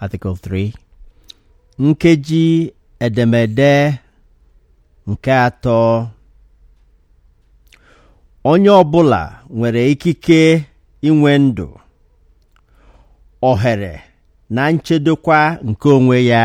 Article 3 nkeji edemede nke atọ onye ọ bụla nwere ikike inwe ndụ ohere na nchedokwa nke onwe ya